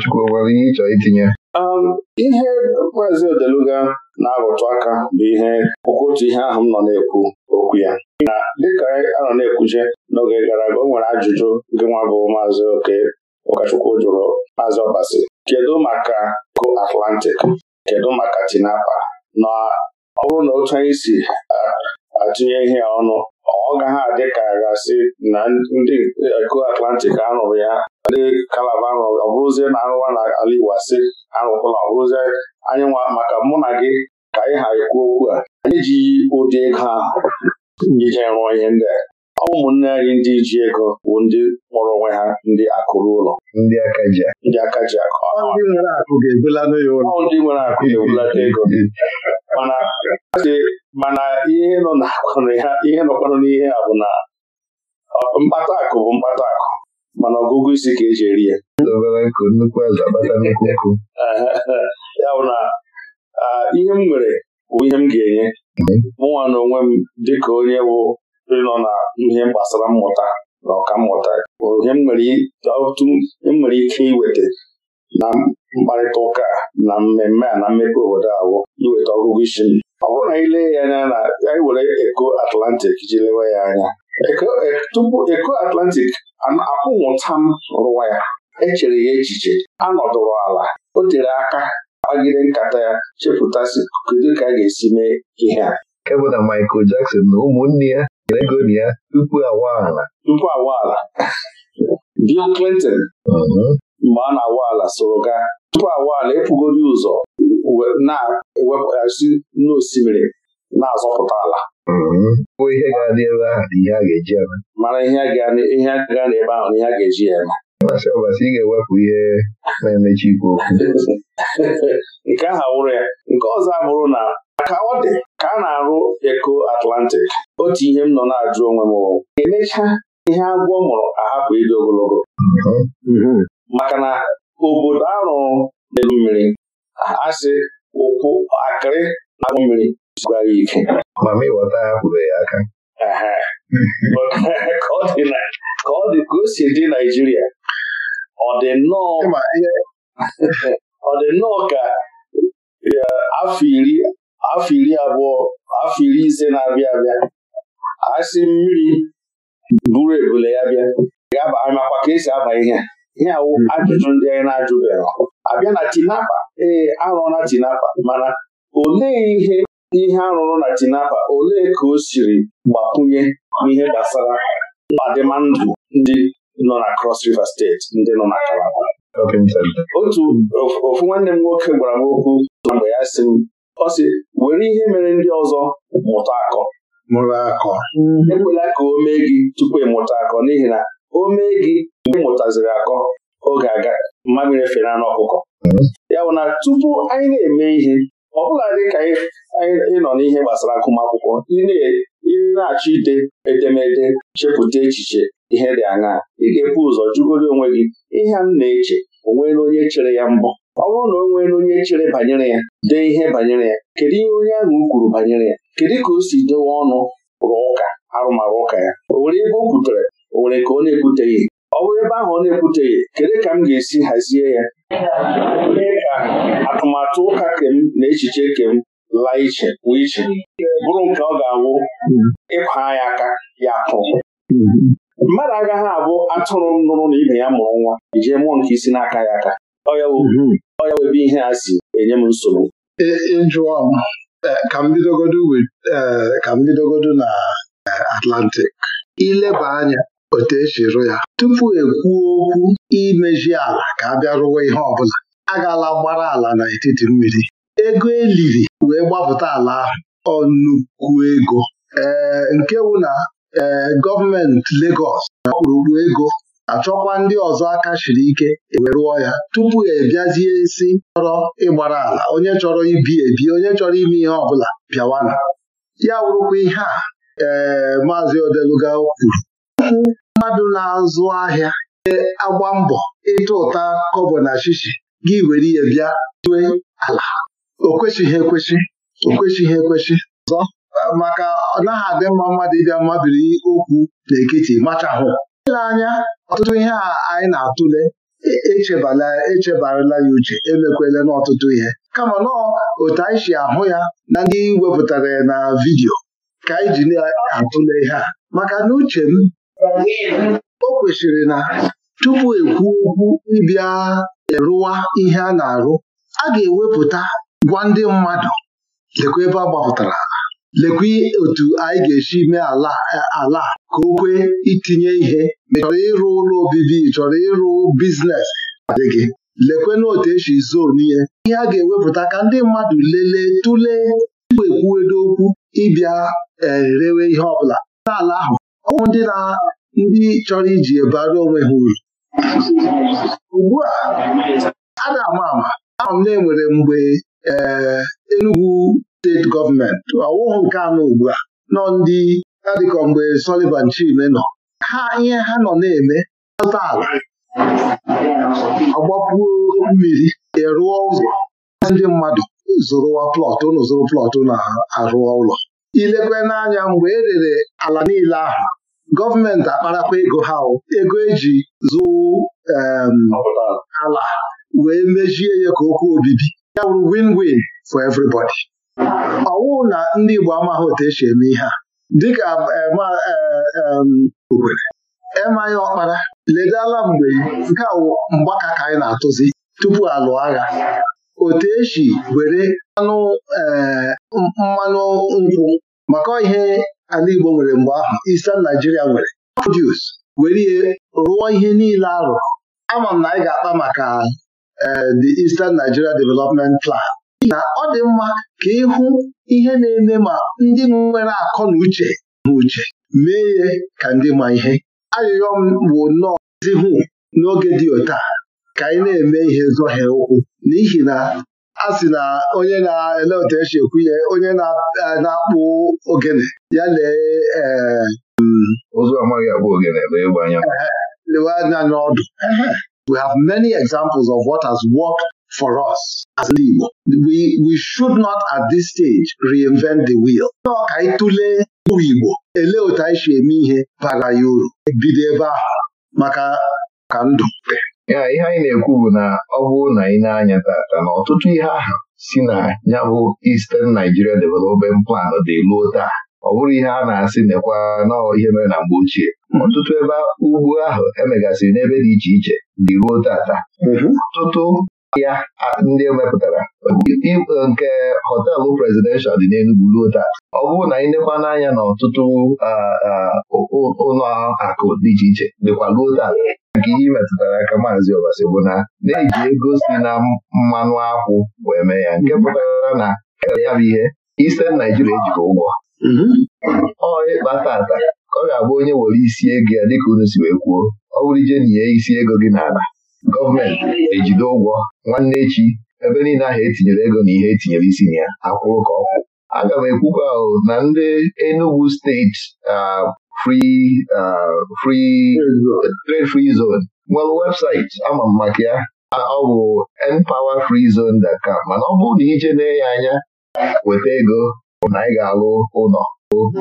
ụkọchukwu nwere ihe ịchọ itinye ihe maazị Odeluga na-arụtụ aka bụ ihe otu ihe ahụ m nọ na-ekwu okwu ya na dịka a nọ na-ekwuje n'oge gara aga o nwere ajụjụ nke nwa bụ maazị oke ụkọchukwu jụrụ maazị ọbasi kedu maka ko Atlantic kedu maka tinapa na ọ bụrụ na otu anyị si uh, atụnye ihe ọnụ ọ gaghị adị ka gasị na ndị ko uh, Atlantic a ya ndị kalaba ahụ ọ bụrụzie na arụwa na ala Igbo asị arụkwala ọ bụrụzie anyị nwa maka mụ na gị ka anyị ha ekwu okwu a anyị ji ụdị ego ahụ ije rụọ ihe ndị a ọ bụ ụmụnne anyị ndị ji ego bụ ndị kpọrọ onwe ha ndị akụrụ ụlọ ndị aka ji akụ ndị nwere akụ ga-ebulata ego mana ihe nọkwanụ n'ihe a bụ na mkpata akụ bụ mkpata akụ mana ọgụgụ isi ka eji eri ya ya bụ na ihe m nwere bụ ihe m ga-enye mụnwa na onwe m dịka onye bụ nọ na ihe gbasara mmụta na ọka mmụta ihe m nwere ike iweta na mkparịta ụka na mmemme a na mmepe obodo ahụ iweta ọgụgụ isi m ọ bụrụ na anyị lee ya anya na anyị were eko atlantik ji lewe ya anya Eh, tupu eko Atlantic akwụnwụta m rụwa ya echere ya echiche a nọdụrụ ala o tere aka gbagide nkata ya chepụtasị kedu ka a ga-esi mee ihe a Ebe na Michael Jackson na ụmụnne ya nyere ego ya tupu awa ala tupu awa ala Bill Clinton mm-hmm. mgbe a na-awa ala soro gaa tupu awa ala epugori ụzọ na-ewepụgasị n'osimiri na-azọpụta ala bụ ihe ga-adị ebe ahụ na ihe a ga-eji eme mara ihe ga na ebe ahụ na ihe a ga-eji eme ọbasị ọbasị ị ga-ewepụ ihe na-emechi ikwu okwu nke ahụ wụrụ ya nke ọzọ abụrụ na ka ọ dị ka a na-arụ eko atlantik otu ihe m nọ na-ajụ onwe m emecha ihe agwọ mụrụ ahapụ ịdị ogologo mhm. Mhm. maka na obodo arụrụ elu mmiri asị ụkwụ akịrị na mmiri zugara ike ma ma ịghọta ya pụrụ ya aka ka ọ dị ka o si dị Naijiria ọ dị nnọọ ka afọ iri afọ iri abụọ afọ iri ise na-abịa abịa asị mmiri buru ebule ya bịa ga-amakwa ka esi aba ihe ihe awụ ajụjụ ndị anyị na-ajụbeghị abịa na tinapa ee arụọla tinapa mana olee ihe ihe arụrụ na Tinapa olee ka o siri gbakwunye n'ihe gbasara ọdịmma ndụ ndị nọ na Cross River steeti ndị nọ na Kalaba otu ofu nwanne m nwoke gwara m okwu mgbe ya si m ọ sị were ihe mere ndị ọzọ mụta akọ ekwela ka o mee gị tupu ịmụta akọ n'ihi na o mee gị mgbe mụtaziri akọ oge aga mmamịrị fere anụ ọkụkọ mm-hmm. ya bụ na tupu anyị na-eme ihe ọ bụla dị ka ịnọ n'ihe gbasara agụmakwụkwọ ị na-achọ ide edemede chepụta echiche ihe dị aṅa ị ga-ebu ụzọ jụgoro onwe gị ihe m na-eche o nweela onye chere ya mbọ ọ bụrụ na o nweela onye chere banyere ya dee ihe banyere ya kedu ihe onye ahụ kwuru banyere ya kedu ka o si dewe ọnụ rụọ ụka arụmarụ ụka ya o nwere ebe o kwutere o nwere ka ọ na-ekwuteghị ọ bụrụ ebe ahụ ọ na-ekwuteghị kedu ka m ga-esi hazie ya ka atụmatụ ụka kem na echiche kem laa iche pụọ iche bụrụ nke ọ ga-awụ ịkwa ya aka ya kụ mmadụ agaghị abụ atụrụ nụrụ na ibe ya mụrụ nwa ijee mụọ nke isi n'aka ya aka ọ ya webe ihe a si enye m nsogbu ịjụọ e, ka m bidogodo e, na Atlantic ileba anya otu esi ya tupu ekwuo okwu imeji ala ka a bịa ihe ọbụla a gaala gbara ala n'etiti mmiri ego eliri wee gbapụta ala ahụ ọnukwu ego ee nke wụ na ee gọọmenti Legọs na ọkpụrụkpụ ego achọkwa ndị ọzọ aka shiri ike e wee rụọ ya tupu ebiazie si chọrọ ịgbara ala onye chọrọ ibi ebi onye chọrọ ime ihe ọbụla bịawana ya wụrụkwa ihe a ee maazị Odeluga kwuru ọtụtụ mmadụ na-azụ ahịa agba mbọ ịtụ ụta kọbọ na shishi gị were ihe bịa tue ala o kwesịghị ekwesị. o kwesịghị ọzọ maka ọ naghị adị mma mmadụ ịbịa mmabiri okwu n'ekiti machahụ ile anya ọtụtụ ihe a anyị na-atụle e, echebarala ya uche emekwela n'ọtụtụ ihe kama nọọ otu anyị si ahụ ya na ndị wepụtara ya na vidiyo ka anyị ji na-atụle ihe a maka na uche m o kwesịrị na tupu ekwu okwu ịbịa rụwa ihe a na-arụ a ga-ewepụta gwa ndị mmadụ lekwa ebe a gbapụtara lekwa otu anyị ga-esi mee ala ala ka o kwee itinye ihe ma chọrọ ịrụ ụlọ obibi chọrọ ịrụ biznes gị lekwana otu esi zonu ihe. ihe a ga-ewepụta ka ndị mmadụ lelee tụlee tupu ekwuedo okwu ịbịa erewe eh, ihe ọbụla n'ala ahụ ọwụ ndị na ndị chọrọ iji ebara onwe ha uru ugbu a a na-ama ama ama na enwere mgbe ee eh, Enugu steeti gọọmenti ọwụhụ nke anọ ugbu a nọ ndị adịkọ mgbe Sullivan Chime nọ ha ihe ha nọ na-eme azụta ala agbapuo mmiri erụọ ụzọ ndị mmadụ e zụrụwa plọt ụnụ zụrụ plọt na-arụọ ụlọ ilekwe n'anya mgbe e rere ala niile ahụ gọọmenti akparakwa ego ha ego eji zụụ ala wee mejie ya ka okwu obibi ya wụrụ win-win for everybody. ọwụ na ndị Igbo amaghị otu esi eme ihe a dịka Okwere emaghị ọkpara ledala mgbe nke a mgbaka ka anyị na-atụzi tupu alụọ agha otu esi were anụ mmanụ nkwụ maka ihe ala Igbo nwere mgbe ahụ Eastern Nigeria nwere produce were ihe rụọ ihe niile arụ ama m na anyị ga-akpa maka e, the Eastern Nigeria Development Plan na ọ dị mma ka ịhụ ihe na-eme ma ndị nwere akọ na uche na uche mee ihe ka ndị ma ihe arịrịọ m bụ nnọọ zihụ n'oge dị otu ka anyị na-eme ihe zọhie ụkwụ n'ihi na a sị na onye na-ele otu esi ekwu ihe onye e, na-akpụ ogene ya lee ee ụzọ mm, amaghị ogene ebe ịgba anya lewe anya n'ọdụ we have many examples of what has worked for us as Igbo. We, we should not at this stage reinvent the wheel. Nọọ ka anyị Igbo Ele otu anyị si eme ihe bara ya uru bido ebe ahụ maka ka ndụ ya ihe anyị na-ekwu bụ na ọ bụrụ na ị na-anya tata na ọtụtụ ihe ahụ si na ya bụ Eastern Nigeria Development Plan dị luo taa ọ bụrụ ihe a na-asị nekwa nọọ ihe mere na mgbe ochie ọtụtụ ebe ugbo ahụ emegasịrị n'ebe dị iche iche dị ruo tata mhm. ọtụtụ ya ndị emepụtara e, nke Họtelụ presidential dị n'Enugwu ruo taa ọ bụrụ na ịndekwa n'anya na ọtụtụ ụlọ akụ dị iche iche dịkwa ruo taa nke ihe metụtara aka maazị Ọbasi bụ na na-eji ego si na mmanụ akwụ wee mee ya nke pụtara na e ya bụ ihe ise Naijiria ejikọ ụgwọ mm-hmm. ọ ịkpa tata ka ọ ga-abụ onye were isi ego ya dịka unu si wee kwuo ọ bụrụ ije nye isi ego gị n'ala gọọmenti ejide ụgwọ nwanne echi ebe niile ahụ etinyere ego na ihe etinyere isi na ya akwụrụ ka ọ aga m ekwukwa ahụ na ndị Enugu steeti uh, Uh, free free zone nwere webụsaịtị ama m maka ya ọ uh, bụ npowerfreezone.com mana ọ bụrụ na ije na ya anya weta ego na anyị ga-alụ ụlọ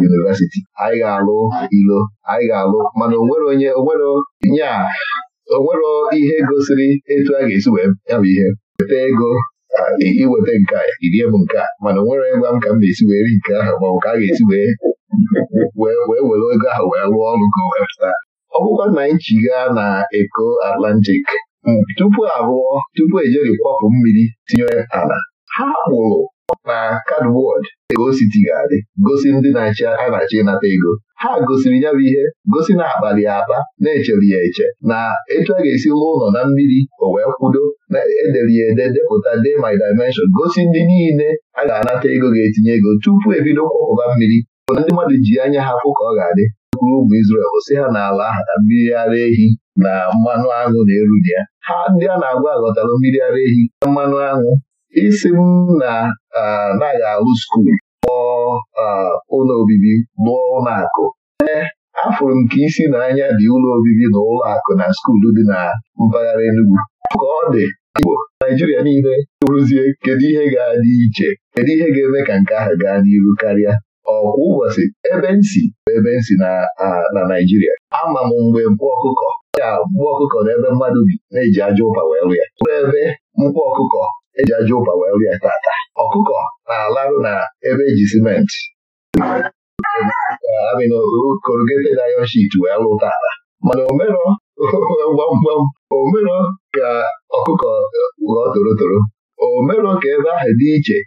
yunivesiti anyị ga-alụ ilo anyị ga-alụ mana onwere onye onwere nya onwere ihe gosiri etu a ga-esi wee ya bụ ihe weta ego uh, iweta nke a irie m nke a mana onwere gwa m ka m na-esi wee ri nke ahụ maọbụ ka a ga-esi wee wee were ego ahụ wee rụọ ọrụ ka wee pụta ọ bụkwa na Nchi gaa na eko Atlantic um, tupu arụọ tupu ejeri kwapụ mmiri tinye ala ha kpụrụ na kadwod ego ga-adị gosi ndị na-achị a na achị ịnata ego ha gosiri ya bụ ihe gosi na akpali akpa na-echere ya eche na etu a ga-esi lụọ ụlọ na mmiri o wee kwudo na edere ya ede depụta de my dimension gosi ndị niile a ga-anata ego ga-etinye ego tupu ebido kwakọba mmiri mana ndị mmadụ ji anya ha ka ọ ga-adị kwuru ụmụ Izrel si ha n'ala ahụ na mmiri ara ehi na mmanụ aṅụ na-eru dị ya ha ndị a na-agwa aghọtara mmiri ara ehi na mmanụ aṅụ isi m na anaghị alụ skuul kpọọ ụlọ obibi lụọ ụlọ akụ ee afụrụ m ka isi na anya dị ụlọ obibi na ụlọ akụ na skuulu dị na mpaghara Enugu ka ọ dị Igbo Naijiria niile rụzie kedu ihe ga-adị iche kedu ihe ga-eme ka nke ahụ gaa n'iru karịa ọkwa ụbọchị ebe nsi bụ ebe nsi na Naịjirịa ama m mgbe mkpụ ọkụkọ ya mkpụ ọkụkọ na ebe mmadụ bi na-eji aja ụpa wee rịa ụrụ ebe mkpụ ọkụkọ eji aja ụpa wee rịa tata ọkụkọ na-alarụ na ebe eji simenti korogete na ayọn shit wee lụ tata mana omero gbamgbam omero ka ọkụkọ ghọọ torotoro omero ka ebe ahụ dị iche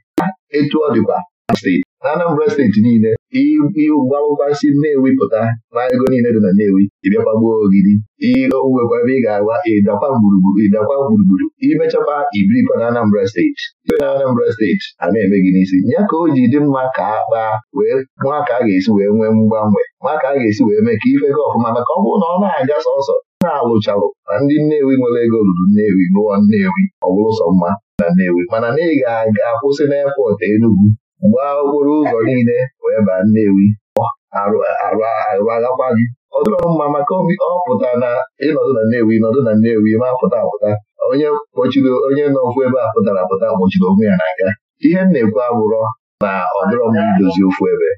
etu ọ dịkwa steeti na Anambra steeti niile ịgbabasi Nnewi pụta na ego niile dị na newi ịbịakwagbuo ogidi iowekwa ebe ị ga agwa ịdakwa gburugburu ịdakwa gburugburu imechakwa ibirikwa na Anambra steeti ibe na Anambra steeti a na-eme gị n'isi ya ka o ji dị mma ka a kpaa wee nwa ka a ga-esi wee nwee mgbanwe nwa ka a ga-esi wee mee ka ife gị ọfụma maka ọ bụrụ na ọ na-aga sọsọ na-alụchalụ na ndị Nnewi nwere ego ruru Nnewi lụọ Nnewi ọ bụrụ sọ mma na Nnewi mana na ị ga-aga kwụsị n'epọtụ gbaa okporo ụzọ niile wee baa Nnewi arụaghakwa gị ọ dịrọ mma maka ọ pụta na ịnọdụ na Nnewi nọdụ na Nnewi ma pụta apụta onye kpochiri onye nọkwu ebe a pụtara apụta kpochiri onwe ya n'aka ihe m na-ekwu abụrọ na ọ dịrọ mma idozi ofu ebe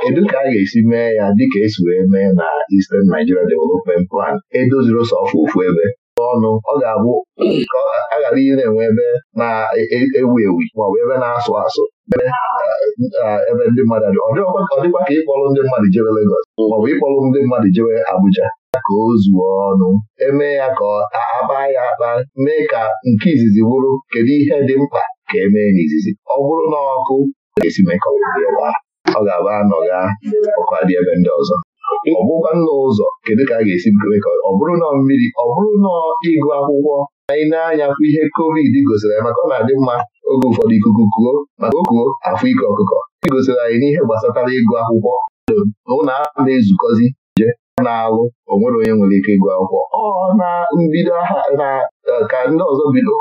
kedu ka a ga-esi mee ya dịka esi wee mee na Eastern Nigeria Development Plan edoziro sọ ofu ebe ọnụ ọ ga-abụ a ghara ihe enwe ebe na-ewu ewu maọbụ ebe na-asụ asụ ebe ndị mmadụ dị ọ dịkwa ka ịkpọrọ ndị mmadụ jewe Legọs maọbụ ịkpọrọ ndị mmadụ jewe Abuja ka o zuo ọnụ eme ya ka akpa ya akpa mee ka nke izizi bụrụ kedu ihe dị mkpa ka emee n'izizi ọ bụrụ na ọkụ ga-esi mekọrọ ọ ga-abụ anọgha ọkụ adị ebe ndị ọzọ ọgbụgba nna ụzọ kedu ka a ga-esi mee ka ọ bụrụ nọ mmiri ọ bụrụ nọ ịgụ akwụkwọ anyị na-anya kwa ihe covid gosiri anyị maka ọ na-adị mma oge ụfọdụ ikuku kuo maka o kuo afọ ike ọkụkọ e gosiri anyị n'ihe gbasatara ịgụ akwụkwọ ụlọ a na-ezukọzi je na-alụ onwere onye nwere ike ịgụ akwụkwọ ọ na mbido na ka ndị ọzọ bido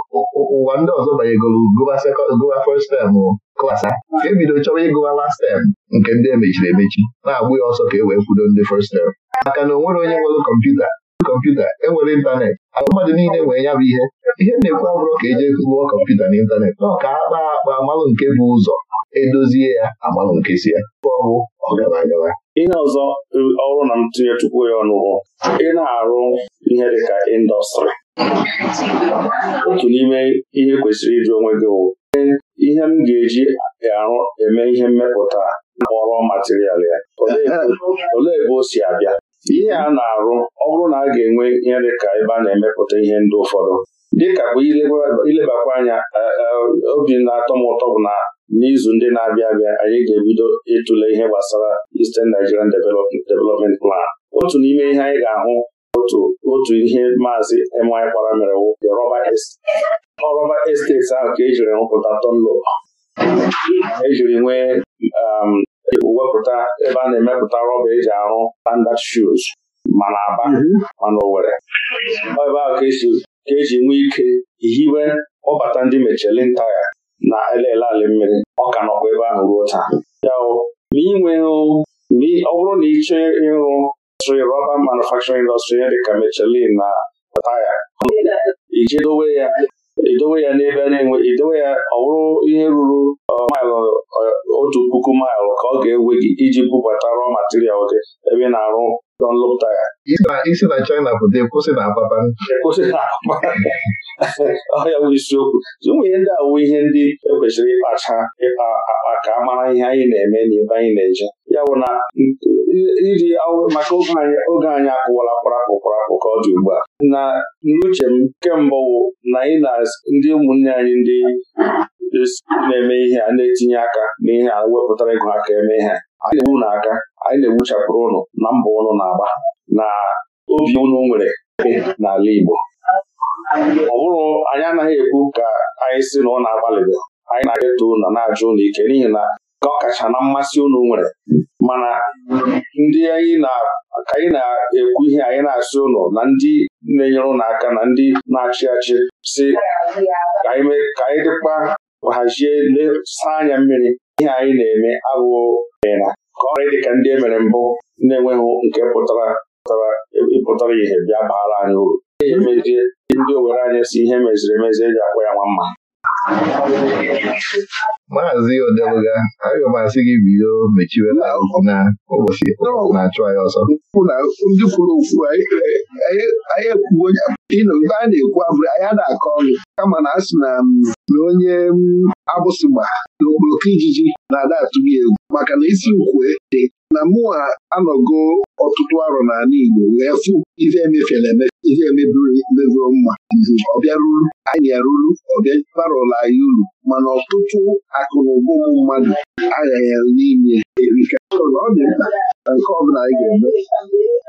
ụwa ndị ọzọ banyegoro gụwa first tem klas a ka ebido chọrọ ịgụwa last tem nke ndị emechiri emechi na-agbụ ya ọsọ ka e wee kwudo ndị first tem. maka na o nwere onye nwere kọmputa kọmputa enwere ịntanetị ahụ mmadụ niile nwere ya bụ ihe ihe na-ekwu abụrụ ka eji gụọ kọmputa na ọ ka a kpaa akpa amalụ nke bụ ụzọ edozie ya amalụ nke si ya ọgwụ ọgaranya ihe ọzọ ọrụ na ntụnye tupu ya ị na-arụ ihe dịka indọstrị otu n'ime ihe kwesịrị ịjụ onwe gị wụ ihe m ga-eji arụ eme ihe mmepụta kpọrọ material ya olee ebe o si abịa ihe a na-arụ ọ bụrụ na a ga-enwe ihe dị ka ebe a na-emepụta ihe ndị ụfọdụ dịka bụ ilebakwa anya e, e, obi na-atọ m ụtọ bụ na n'izu ndị na-abịa abịa anyị ga-ebido ịtụle ihe gbasara Eastern Nigerian Development Plan otu n'ime ihe anyị ga-ahụ otu ihe maazị my kpara mere ọrọba esteti ahụ ka ejiri rụpụta tonlop ejiri nwee um, wepụta ebe a na-emepụta rọba eji arụ standard shoes mana aba mhm. mana Owerri ebe ahụ ka eji e nwee ike hiwe ọbata ndị Michelin taya na elele ala mmiri ọ ka nọkwa ebe ahụ ruo taa ya inwe ọ bụrụ na ị chọọ ịrụ indọstrị rọba manufacturing indọstrị ya dịka Michelin na taya iji dowe ya idowe ya n'ebe na-enwe idowe ya ọ bụrụ ihe ruru maịlụ otu puku maịlụ ka ọ ga-ewe gị iji bubata rọ material gị ebe ị na-arụ Dunlop taya isi na China pụta kwụsị na Ababan ọya bụ isiokwu ụmụ ihe ndị awụ ihe ndị ekwesịrị ịkpacha ịkpa akpa ka a mara ihe anyị na-eme n'ebe anyị na-eje ya bụ na iji maka oge anyị akụwala kparakpụ kparakpụ ka ọ dị ugbu a na n'uche m kemgbe na na ndị ụmụnne anyị ndị na-eme ihe a na-etinye aka n'ihe a wepụtara ego aka eme ihe anyị na-egbu aka anyị na-egbuchapụrụ ụnụ na mbọ ụnụ na-agba na obi ụnụ nwere n'ala Igbo ọ bụrụ anyị anaghị ekwu ka anyị si na ọ na-agbalịgo anyị na-eto na na-ajụ ụlọ ike n'ihi na ka ọ kacha na mmasị unu nwere mana ndị anyị na anyị na-ekwu ihe anyị na-asị ụnụ na ndị na-enyere ụnụ aka na ndị na-achị achị si ka anyị dịkpa hazie saa anya mmiri ihe anyị na-eme abụghị na ka ọ dị ka ndị e mere mbụ na-enweghị nke pụtara ịpụtara ihe bịa baara anyị uru ndị owere anyị si ihe meziri emezi eji akpọ ya nwa mma maazị odeluga aga m asị gị bido mechiwela na ụbọchị na-achụ anyị ọsọ ndị kwuru okwu anyị ekwuo nke a na-ekwu abụrụ anyị na-akọ ọnụ kama na asị na na onye abụsịgba na okporoko ijiji na-ada atụghị egwu maka na isi ukwe dị na mụa anọgo ọtụtụ arọ n'ala Igbo wee fụ ife emefiela emefe ife emebiro mma ọ bịaruru anyị yaruru ọbịa barụla anyị uru mana ọtụtụ akụnụba ụmụ mmadụ aghaghị n'inye erika ọ dị mkpa na nke ọbụla anyị ga-eme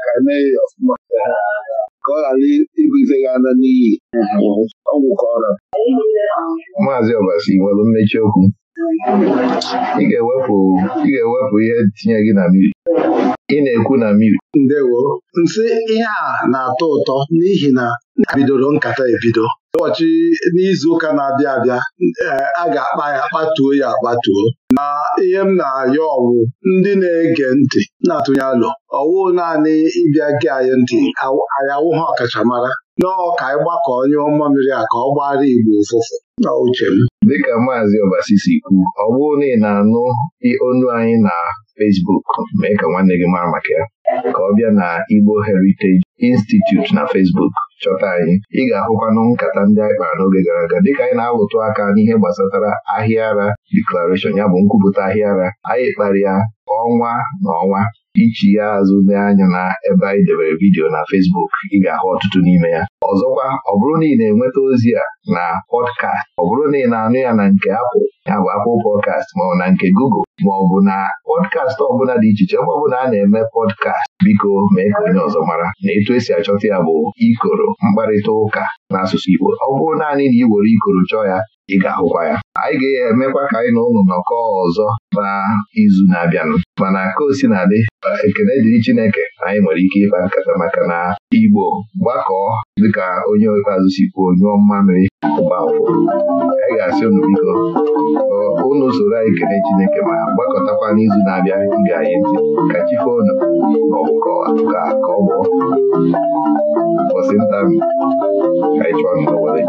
ka e mee ya ọfụma ka ọ ghara ibuzegha ala n'iyi ọgwụ ka ọ rara Maazị Ọbasi nwere mmechi okwu ị ga-ewepụ ihe tinye gị na mmiri ị na-ekwu na mmiri ndewo nsị ihe a na-atọ ụtọ n'ihi na bidoro nkata ebido ụbọchị n'izu ụka na-abịa abịa eh, a ga-akpa ya kpatuo ya akpatuo na ihe m na-ayọ ọwụ ndị na-ege ntị na-atụnye alụ ọwụ naanị ịbịa gị anyị ntị anyị awụghị ọkachamara nọọ ka anyị gbakọ onye ọma mmiri a ka ọ gbara Igbo ụfụfụ na uche m. dịka maazị Obasi si kwuo ọ bụrụ na ị na-anụ onu anyị na Facebook mee ka nwanne gị mara maka ya ka ọ bịa na Igbo Heritage Institute na Facebook chọta anyị ị ga-ahụkwanụ nkata ndị anyị kpara n'oge gara aga dịka anyị na-alụtụ aka n'ihe gbasatara ahịa ara Declaration ya bụ nkwupụta ahịa ara anyị kpara ya ọnwa na ọnwa ichi ya azụ anya na ebe anyị debere vidiyo na Fesbuk ị ga-ahụ ọtụtụ n'ime ya ọzọkwa ọ bụrụ na ị na-enweta ozi a na pọdkast ọ bụrụ na ị na-anụ ya na nke apụl ya bụ apụl pọdkast maọbụ na nke Google maọbụ na pọdkast ọbụla dị iche iche bụ na a na-eme pọdkast biko mee ka onye ọzọ mara na etu esi achọta ya bụ ikoro mkparịta ụka n'asụsụ Igbo ọ bụrụ naanị na ị were ikoro chọọ ya ị ga-ahụkwa ya anyị ga-emekwa ka anyị na ụnụ nọkọ ọzọ na izu na-abịanụ mana ka o si na adị ekene dịrị Chineke anyị nwere ike ịkpa nkata maka na Igbo gbakọọ dịka onye ikpeazụ si kwuo nyụọ mmamịrị mgbafọ anyị ga-asị unu biko ụnụ soro anyị Ekene Chineke ma gbakọtakwa n'izu na-abịa ige anyị ntị ka chife unu ma ọ ka ọ bụ bọsịnta ka anyị chọọ n'ụwa echi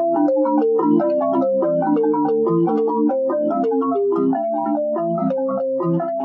deaaedea aa eaa